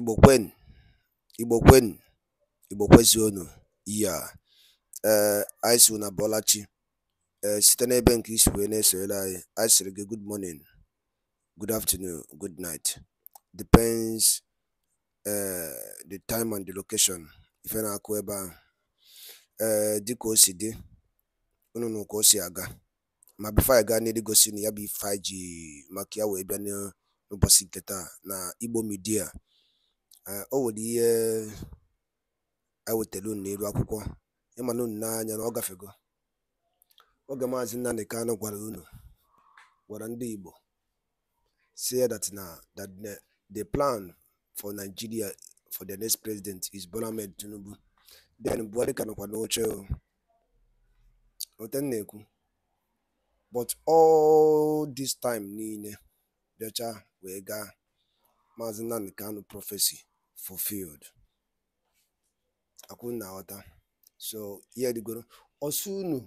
Igbo kwen, Igbo kwen, Igbo kwezionu. Yea! Ee, eh, anyị sị unu Ee, eh, site n'ebe nke isi wee na-esonyere anyị, anyị gị good morning, good afternoon, good night. Depends ee eh, the time and the location ife na-akụ ebe ahụ. Ee dịka o si dị, unu nụ ka o si aga. Ma bifo anyị gaa n'iru gosi ya bụ ife anyị ji maka ya wee bịa n'ụbọchị nke taa na Igbo midia. o nwere ihe anyị e wetela unu n'elu akwụkwọ ịmana unu n'anya na ọ gafego oge maazị Nnamdi kanụ gwara unu gwara ndị Igbo say that na that the plan for Nigeria for the next president is Bola Tinubu then Buhari ka nọkwa n'oche ote na-ekwu but all this time niile bịacha wee ga maazị Nnamdi kanụ prophecy fulfilled akwụ na so ihe dịgoro ọsọ unu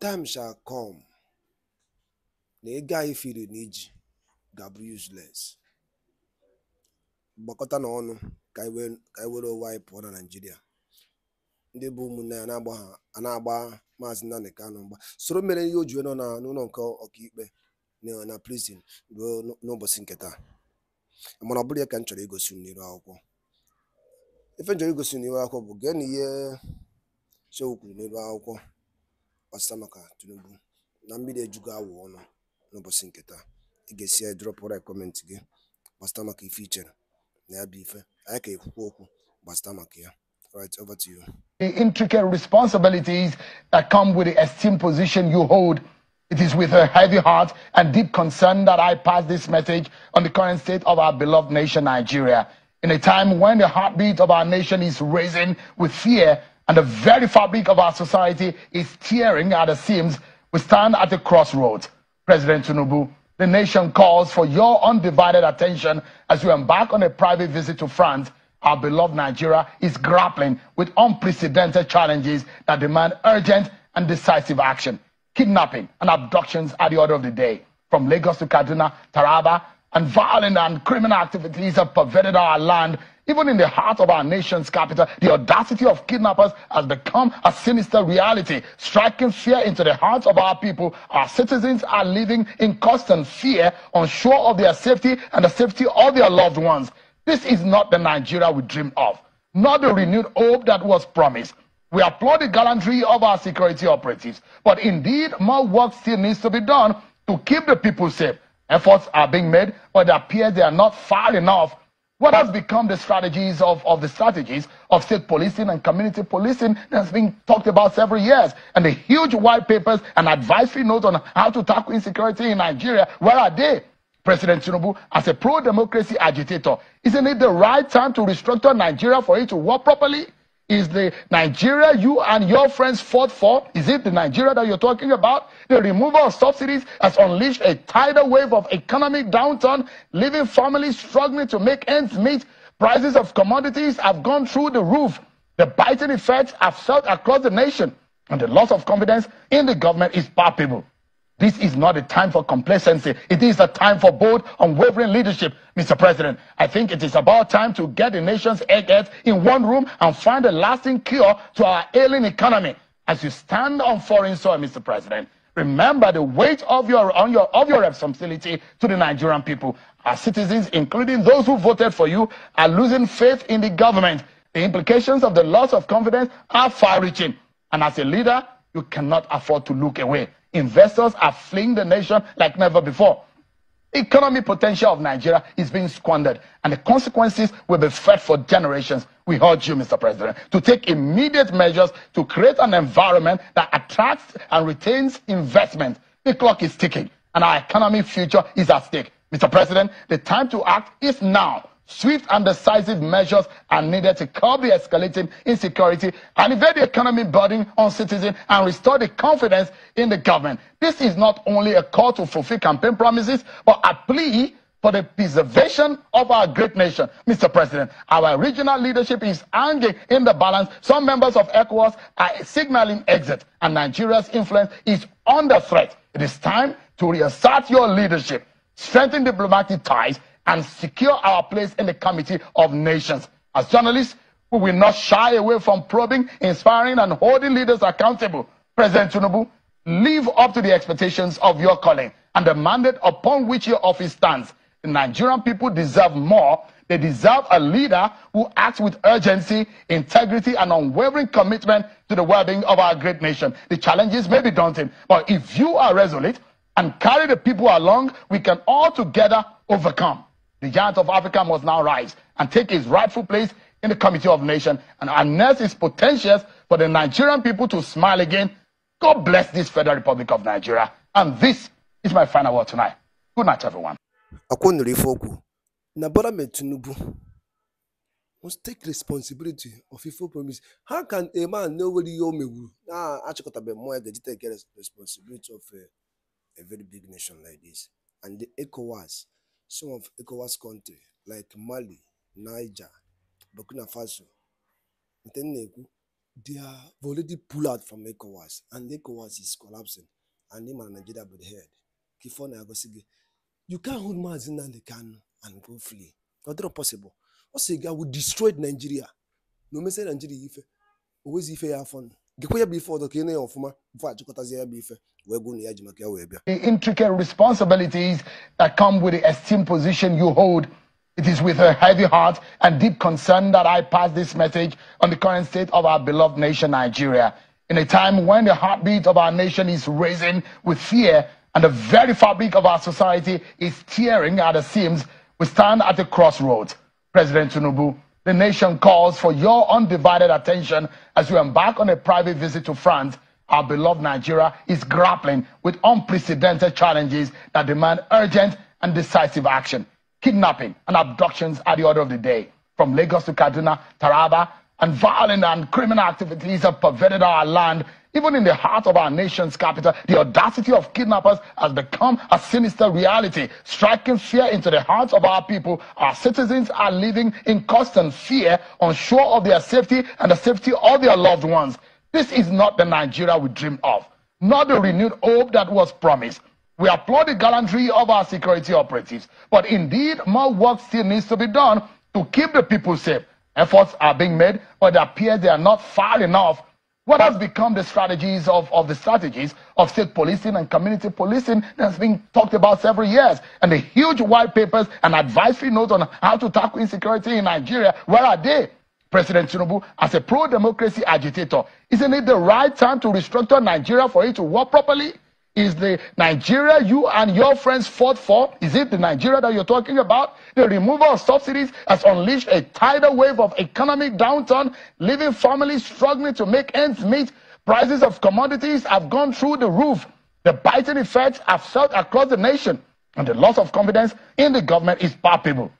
time shall come na ego anyị firi na iji ga-abụ useless gbakọta na ọnụ ka anyị were ụwa anyị pụọ na Naịjirịa ndị bụ ụmụnne ya na-agba maazị Nnamdi Kanu mgba soro mere ihe o ji nọ n'ụlọ nke ọkaikpe na prison ruo n'ụbọchị nke taa mana ọ bụrụ ya ka m chọrọ igosi n'iru akwụkwọ ife m chọrọ igosi n'iru akwụkwọ bụ gee na ihe Shehu kwuru n'elu akwụkwọ ọsịsa maka Tinubu na mmiri ejugo awụ ọnụ n'ụbọchị nke taa ị ga-esi ya drọpụra kọmentị gị gbasịta maka ife i chere na ya bụ ife anyị ka ekwukwa okwu gbasịta maka ya Right, over to you. The intricate responsibilities that come with the esteemed position you hold It is with a heavy heart and deep concern that I pass this message on the current state of our beloved nation, Nigeria. In a time when the heartbeat of our nation is raising with fear and the very fabric of our society is tearing at the seams, we stand at a crossroads. President Tinubu, the nation calls for your undivided attention as you embark on a private visit to France. Our beloved Nigeria is grappling with unprecedented challenges that demand urgent and decisive action kidnapping and abductions are the order of the day. From Lagos to Kaduna, Taraba, and violent and criminal activities have pervaded our land. Even in the heart of our nation's capital, the audacity of kidnappers has become a sinister reality, striking fear into the hearts of our people. Our citizens are living in constant fear, unsure of their safety and the safety of their loved ones. This is not the Nigeria we dreamed of, not the renewed hope that was promised. We applaud the gallantry of our security operatives, but indeed more work still needs to be done to keep the people safe. Efforts are being made, but it appears they are not far enough. What has become the strategies of, of the strategies of state policing and community policing that has been talked about several years? And the huge white papers and advisory notes on how to tackle insecurity in Nigeria, where are they? President Tinubu, as a pro-democracy agitator, isn't it the right time to restructure Nigeria for it to work properly? Is the Nigeria you and your friends fought for? Is it the Nigeria that you're talking about? The removal of subsidies has unleashed a tidal wave of economic downturn, leaving families struggling to make ends meet. Prices of commodities have gone through the roof. The biting effects have felt across the nation, and the loss of confidence in the government is palpable. This is not a time for complacency. It is a time for bold, unwavering leadership, Mr. President. I think it is about time to get the nation's eggheads in one room and find a lasting cure to our ailing economy. As you stand on foreign soil, Mr. President, remember the weight of your, on your, of your responsibility to the Nigerian people. Our citizens, including those who voted for you, are losing faith in the government. The implications of the loss of confidence are far-reaching. And as a leader, you cannot afford to look away. Investors are fleeing the nation like never before. Economic potential of Nigeria is being squandered, and the consequences will be felt for generations. We urge you, Mr. President, to take immediate measures to create an environment that attracts and retains investment. The clock is ticking, and our economy' future is at stake. Mr. President, the time to act is now. Swift and decisive measures are needed to curb the escalating insecurity and evade the economy burden on citizens and restore the confidence in the government. This is not only a call to fulfill campaign promises, but a plea for the preservation of our great nation. Mr. President, our regional leadership is hanging in the balance. Some members of ECOWAS are signaling exit, and Nigeria's influence is under threat. It is time to reassert your leadership, strengthen diplomatic ties, and secure our place in the committee of nations. As journalists, we will not shy away from probing, inspiring, and holding leaders accountable. President Tinubu, live up to the expectations of your calling and the mandate upon which your office stands. The Nigerian people deserve more. They deserve a leader who acts with urgency, integrity, and unwavering commitment to the well-being of our great nation. The challenges may be daunting, but if you are resolute and carry the people along, we can all together overcome. The giant of Africa must now rise and take his rightful place in the Committee of Nations and harness his potentials for the Nigerian people to smile again. God bless this Federal Republic of Nigeria. And this is my final word tonight. Good night, everyone. must take responsibility of ifo promise how can a man know where ihe o mewuru na ah, achịkọtabeghị mmụọ ya ga-eji take responsibility of a, eh, a very big nation like this and the ECOWAS Some of ECOWAS countries like Mali, Niger, Burkina Faso they have already pulled out from ECOWAS and ECOWAS is collapsing and them and Nigeria by the head. Kifor na you can't hold Maazị Nnamdi can, and go flee. Ọ dịrọ possible. Ọ sị gị, I will destroy Nigeria. No o Nigeria ife, o wezi ife ya ọfụma ya the intricate responsibilities that come with the esteemed position you hold It is with a heavy heart and deep concern that I pass this message on the current state of our beloved nation, Nigeria. In a time when the heartbeat of our nation is racing with fear and the very fabric of our society is tearing at the seams, we stand at a crossroads. President Tinubu, the nation calls for your undivided attention as you embark on a private visit to France. Our beloved Nigeria is grappling with unprecedented challenges that demand urgent and decisive action. Kidnapping and abductions are the order of the day. From Lagos to Kaduna, Taraba, and violent and criminal activities have pervaded our land even in the heart of our nation's capital, the audacity of kidnappers has become a sinister reality, striking fear into the hearts of our people. Our citizens are living in constant fear, unsure of their safety and the safety of their loved ones. This is not the Nigeria we dream of, not the renewed hope that was promised. We applaud the gallantry of our security operatives, but indeed, more work still needs to be done to keep the people safe. Efforts are being made, but it appears they are not far enough what has become the strategies of, of the strategies of state policing and community policing that's been talked about several years? And the huge white papers and advisory notes on how to tackle insecurity in Nigeria, where are they? President Tinubu, as a pro-democracy agitator, isn't it the right time to restructure Nigeria for it to work properly? Is the Nigeria you and your friends fought for? Is it the Nigeria that you're talking about? The removal of subsidies has unleashed a tidal wave of economic downturn, leaving families struggling to make ends meet. Prices of commodities have gone through the roof. The biting effects have felt across the nation, and the loss of confidence in the government is palpable.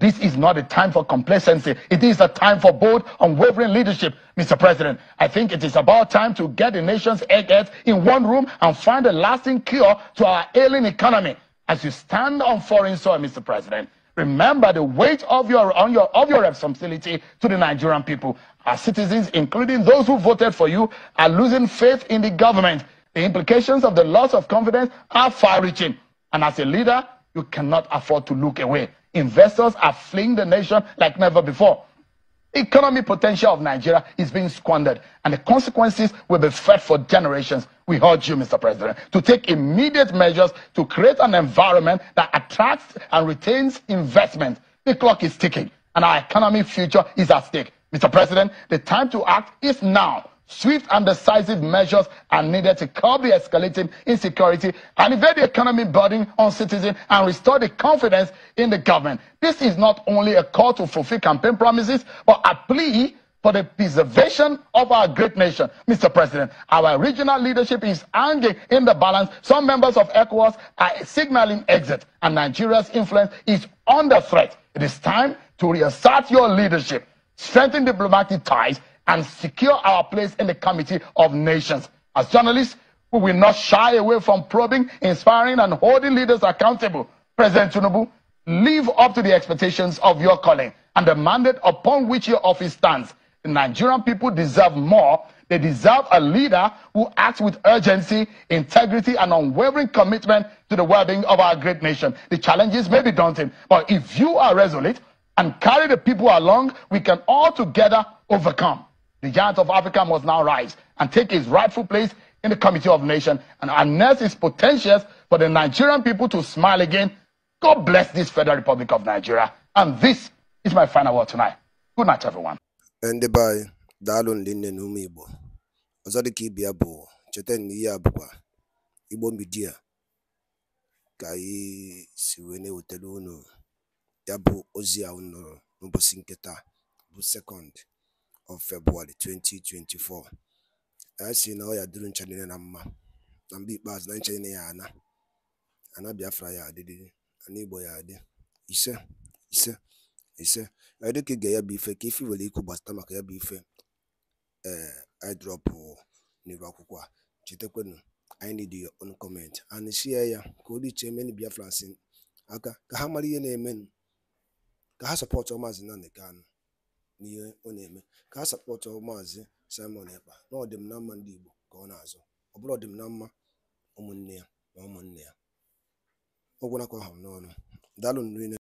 This is not a time for complacency. It is a time for bold, unwavering leadership, Mr. President. I think it is about time to get the nation's eggheads in one room and find a lasting cure to our ailing economy. As you stand on foreign soil, Mr. President, remember the weight of your, on your, of your responsibility to the Nigerian people. Our citizens, including those who voted for you, are losing faith in the government. The implications of the loss of confidence are far-reaching. And as a leader, you cannot afford to look away. Investors are fleeing the nation like never before. Economic potential of Nigeria is being squandered, and the consequences will be felt for generations. We urge you, Mr. President, to take immediate measures to create an environment that attracts and retains investment. The clock is ticking, and our economic future is at stake. Mr. President, the time to act is now. Swift and decisive measures are needed to curb the escalating insecurity and evade the economy burden on citizens and restore the confidence in the government. This is not only a call to fulfill campaign promises, but a plea for the preservation of our great nation. Mr. President, our regional leadership is hanging in the balance. Some members of ECOWAS are signaling exit, and Nigeria's influence is under threat. It is time to reassert your leadership, strengthen diplomatic ties, and secure our place in the committee of nations. As journalists, we will not shy away from probing, inspiring, and holding leaders accountable. President Tinubu, live up to the expectations of your calling and the mandate upon which your office stands. The Nigerian people deserve more. They deserve a leader who acts with urgency, integrity, and unwavering commitment to the well being of our great nation. The challenges may be daunting, but if you are resolute and carry the people along, we can all together overcome. The giant of Africa must now rise and take his rightful place in the Committee of Nations and harness its potentials for the Nigerian people to smile again. God bless this Federal Republic of Nigeria. And this is my final word tonight. Good night, everyone. bụ of February 2024 na ọ ya dịrị na mma na ikpeazụ na ncha ya Biafra ya Igbo ya adị ise ise ise ya bụ ife ka ife nwere ikwu gbasata maka ya bụ ife ee eh, akwụkwọ a chetakwanụ i need your own comment and ya Biafra aka ihe na n'ihe ọ na-eme ka a sapọtụ maazị Simon Ekpa na n'ama ndị Igbo ka ọ na-azụ ọ bụrụ mma ụmụnne ya na ụmụnne ya ọ ha n'ọnụ daalụ nri